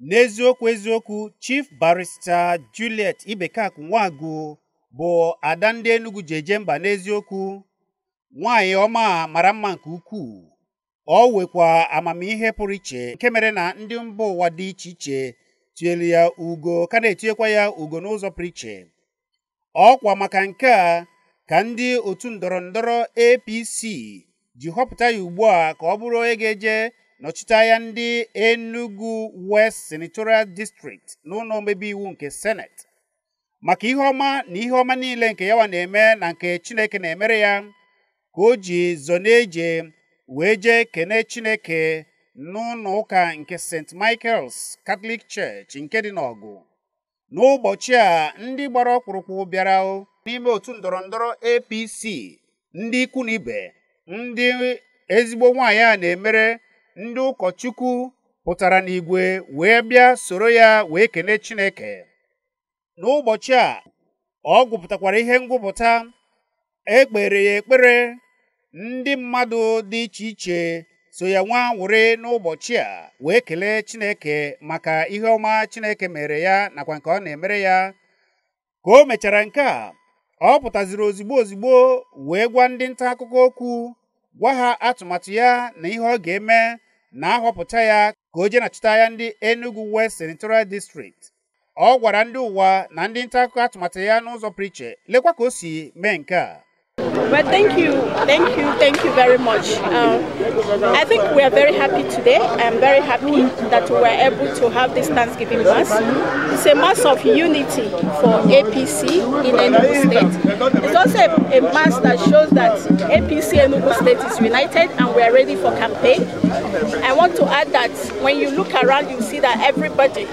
n'eziokwu eziokwu chief barrister juliet ibekak Nwagu, bụ ada ndị enugu ji eje mba n'eziokwu nwanyị ọma mara mma nke ukwuu ọ wekwa amamihe pụrụ iche nke mere na ndị mba ụwa dị iche iche tinyere ya ugo ka na-etinyekwa ya ugo n'ụzọ pụrụ iche ọkwa maka nke a ka ndị otu ndọrọ ndọrọ APC ji họpụta ya ugbu a ka ọ bụrụ onye ga-eje nọchite ya ndị Enugu West Senatorial District n'ụlọ omebe iwu nke Senate maka ihe ọma na ihe ọma niile nke yawa na-eme na nke Chineke na-emere ya ka o ji zọ eje wee jee kene Chineke n'ụlọ ụka nke St. Michael's Catholic Church nke dị n'Ọgụ n'ụbọchị a ndị gbara ọkpụrụkpụ bịara n'ime otu ndọrọ ndọrọ APC ndị ikwu na ibe ndị ezigbo nwaanyị a na-emere ndị ụkọchukwu pụtara n'igwe wee bịa soro ya wee kene Chineke n'ụbọchị a ọ gwụpụtakwara ihe ngwụpụta ekpere ya ekpere ndị mmadụ dị iche iche so ya nwa nwụrị n'ụbọchị a wee kelee Chineke maka ihe ọma Chineke mere ya nakwa nke ọ na-emere ya ka o mechara nke a ọ pụtaziri ozigbo ozigbo wee gwa ndị nta akụkọ okwu gwa ha atụmatụ ya na ihe ọ ga-eme na ahọpụta ya ka o na nachụta ya ndị Enugu West Senatorial District ọ gwara ndị ụwa na ndị nta akụkọ atụmatụ ya n'ụzọ priche lekwa ka o si mee nke a Well, thank you, thank you, thank you very much. Um, I think we are very happy today. I'm very happy that we were able to have this Thanksgiving Mass. It's a Mass of unity for APC in Enugu State. It's also a, a Mass that shows that APC Enugu State is united and we are ready for campaign. I want to add that when you look around, you see that everybody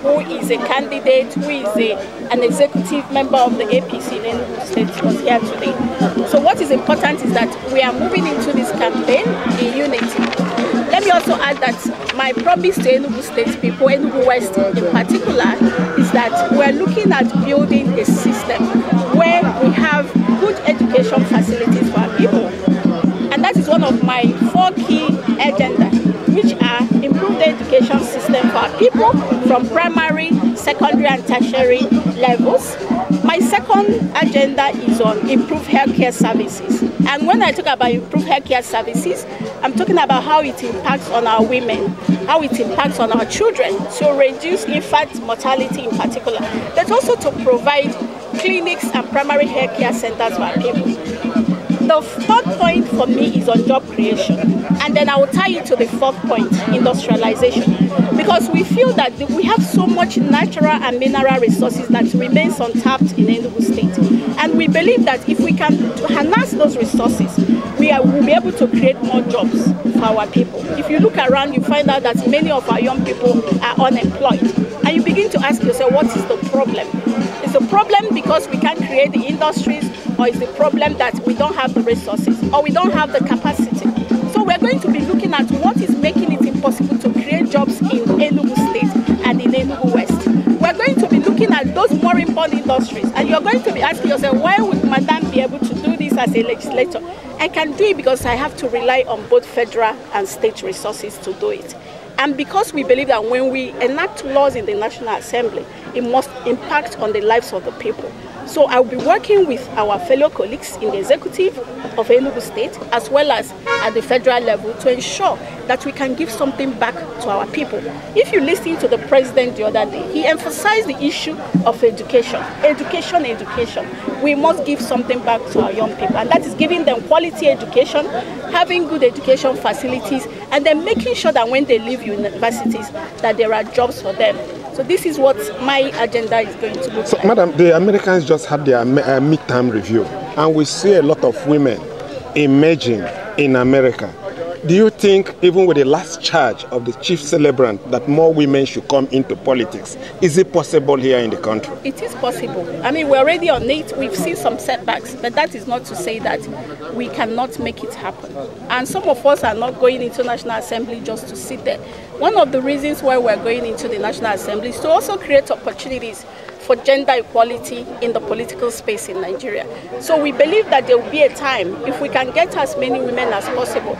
who is a candidate, who is a, an executive member of the APC in Enugu State was here today. So what is important is that we are moving into this campaign in unity. Let me also add that my promise to Enugu State people, Enugu West in particular, is that we're looking at building a system where we have good education facilities for our people. And that is one of my people from primary, secondary and tertiary levels. My second agenda is on improved healthcare services. And when I talk about improved healthcare services, I'm talking about how it impacts on our women, how it impacts on our children to reduce infant mortality in particular, but also to provide clinics and primary healthcare centers for our people. the third point for me is on job creation. And then I will tie it to the fourth point, industrialization. Because we feel that we have so much natural and mineral resources that remains untapped in Enugu State. And we believe that if we can harness those resources, we will be able to create more jobs for our people. If you look around, you find out that many of our young people are unemployed. And you begin to ask yourself, what is the problem? problem because we can't create the industries, or is the problem that we don't have the resources, or we don't have the capacity? So we're going to be looking at what is making it impossible to create jobs in Enugu State and in Enugu West. We're going to be looking at those more important industries, and you're going to be asking yourself, why would Madame be able to do this as a legislator? I can do it because I have to rely on both federal and state resources to do it. And because we believe that when we enact laws in the National Assembly, it must impact on the lives of the people. So I'll be working with our fellow colleagues in the executive of Enugu State as well as at the federal level to ensure that we can give something back to our people. If you listen to the president the other day, he emphasized the issue of education. Education, education. We must give something back to our young people, and that is giving them quality education, having good education facilities, and then making sure that when they leave universities, that there are jobs for them. So this is what my agenda is going to look so, like. Madam, the Americans just had their uh, midterm review, and we see a lot of women emerging in America. Do you think, even with the last charge of the chief celebrant, that more women should come into politics? Is it possible here in the country? It is possible. I mean, we're already on it. We've seen some setbacks, but that is not to say that we cannot make it happen. And some of us are not going into National Assembly just to sit there. One of the reasons why we're going into the National Assembly is to also create opportunities for gender equality in the political space in Nigeria. So we believe that there will be a time if we can get as many women as possible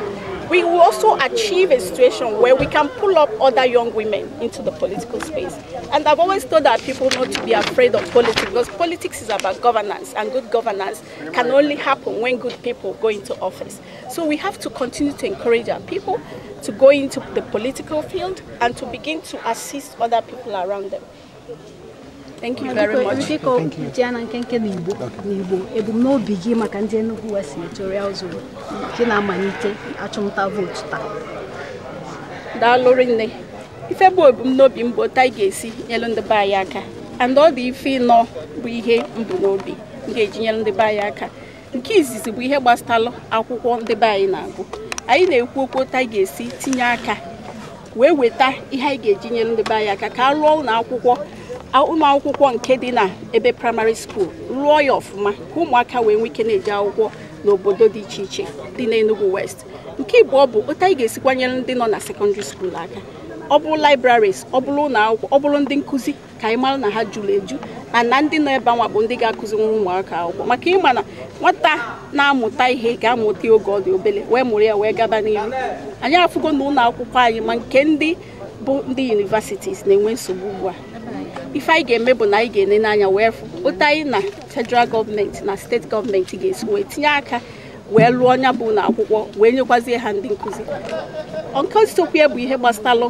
we will also achieve a situation where we can pull up other young women into the political space. And I've always told our people not to be afraid of politics because politics is about governance and good governance can only happen when good people go into office. So we have to continue to encourage our people to go into the political field and to begin to assist other people around them. biko ji na nkenke n'igbo n'igbo ebumnobi gị maka ndị Enugu West Senatorial Zone gị na-amalite achụmnta vootu taa daalụrụ nne ife bụ ebumnobi mbụ taa ga-esi nyelu ndị be anyị aka and ọ dị ife ịnọ bụ ihe mbụ n'obi ga-eji nyelu ndị be anyị aka nke izizi bụ ihe gbasatalụ akwụkwọ ndị be anyị na-agụ anyị na-ekwu okwu taa ga-esi tinye aka wee weta ihe anyị ga-eji nyelu ndị be anyị aka ka a rụọ ụlọ akwụkwọ ụmụ akwụkwọ nke dị na ebe praịmarị skuul rụọ ya ọfụma ka ụmụaka wee nwee ike na-eje akwụkwọ n'obodo dị iche iche dị n'Enugu West nke Igbo ọ bụ ụta anyị ga-esikwanyere ndị nọ na sekọndịrị skuul aka ọ bụrụ libraries ọ bụrụ ụlọ akwụkwọ ọ bụrụ ndị nkụzi ka anyị mara na ha jụrụ eju na na ndị nọ ebe anwa bụ ndị ga-akụziri ụmụaka akwụkwọ maka ịma na nwata na-amụta ihe ga-amụta oge ọ dị obele wee mụrụ ya wee gaba n'ihu anyị afụgo na ụlọ akwụkwọ anyị ma nke ndị bụ ndị universities na-enwe nsogbu ugbu a ife anyị ga-eme bụ na anyị ga ene n'anya wee fụ ụta anyị na federal gọọmenti na steeti gọọmenti ga-esi wee tinye aka wee lụọ ọnya bụ na akwụkwọ wee nyekwazie ha ndị nkụzi nke sokwe bụ ihe gbasalụ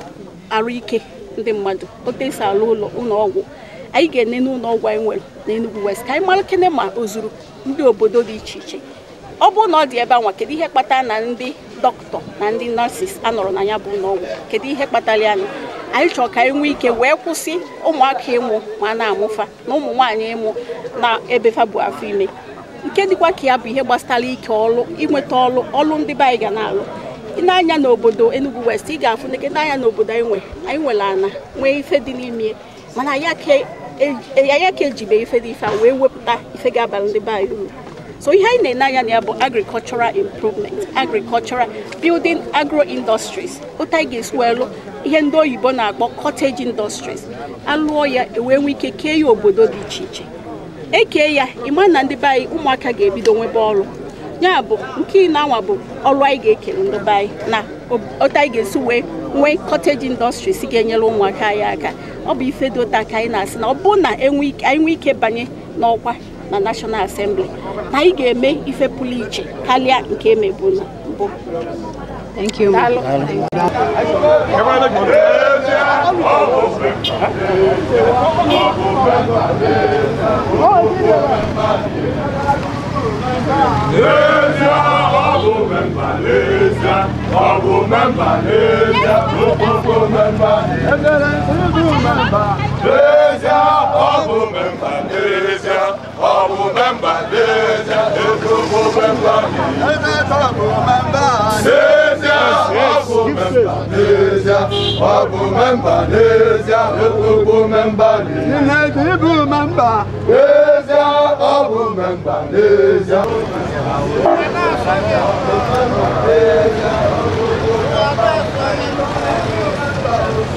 arụ ike ndị mmadụ ote esi alụ ụlọ ụlọọgwụ anyị ga ene n'ụlọ ọgwụ anyị nwere na enugwu West ka anyị mara kene ma o zuru ndị obodo dị iche iche ọ bụrụ na ọ dị ebe anwa kedu ihe kpatara na ndị dọkịta na ndị nọọsis anọrọ na ya bụ ụlọọgwụ kedu ihe kpatara ya anyị chọrọ ka anyị nwee ike wee kwụsị ụmụaka ịmụ ma na-amụfa na ụmụ nwaanyị ịmụ na ebefa bụ afọ ime nke dịkwa ka ya bụ ihe gbasara ike ọlụ inweta ọlụ ọlụ ndị be anyị ga na-alụ n'anya n'obodo Enugu West ị ga-afụ neke n'anya obodo anyị nwe anyị nwere ana nwee ife dị n'ime mana anyị ka e, ejibe ife dị ife a wee wepụta ife ga-abara ndị be anyị uru so ihe anyị na-ene anya bụ agricultural improvement agricultural building agro industries otu anyị ga-esi wee lụ ihe ndị oyibo na-akpọ cottage industries alụọ ya ewee nwee ike kee ya obodo dị iche iche ekee ya ịma na ndị be anyị ụmụaka ga-ebido nwebe ọrụ ya bụ nke ị na-anwa bụ ọrụ anyị ga-ekele ndị be anyị na otu anyị ga-esi wee nwee cottage industries ga-enyere ụmụaka anyị aka ọ bụ ife dị ụta ka anyị na-asị na ọ bụ na e anyị nwee ike banye n'ọkwa na National Assembly na anyị ga-eme ife pụrụ iche karịa nke emebu na mbụ Thank you. Ọ bụ n'ezie, ọ̀bù bẹ́mbà déédéé ètòbù bẹ́mbà mi. ẹ̀mẹ́tọ̀bù bẹ́mbà déédéé ọ̀bù bẹ́mbà déédéé ọ̀bù bẹ́mbà déédéé ètòbù bẹ́mbà mi. ìnẹ̀jì ibù bẹ́mbà. ọ̀bù bẹ́mbà déédéé.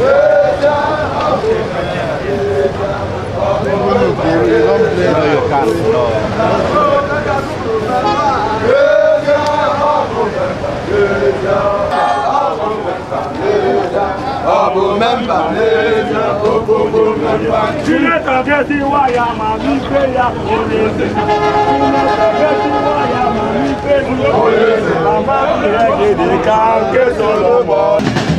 Yeah. Ilé tàbí I'm wáyà màmí gbé ya olè ṣe. Ilé tàbí ti wáyà màmí gbé ya olè ṣe. Bàbá mi rẹ̀ gèdè ká gé sọ̀rọ̀ bọ̀.